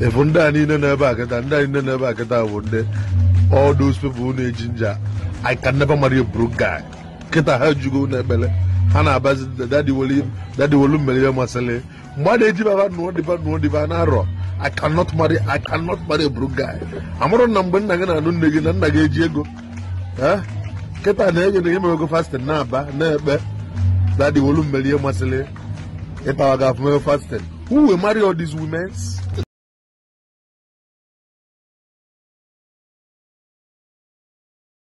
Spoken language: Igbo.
efu ndị a niile n'a a kịta ndị a niile n'a ebe kịta bụ ndị all those people na-eji nja I can never marry a kịta ha jugo n'ekpere ha na-abazi dadi wolu ihe masịrị mgbe a na-eji baba nụọ dịba nụọ dịba na-arọ I cannot marry a amụrụ na mgbe nna gị na-anụ nne gị na nna gị eji ego kịta na-ege na ego fastin na-aba na-ekpe dadi ihe masịrị ịtawa afụmewe fastin uwe mari marry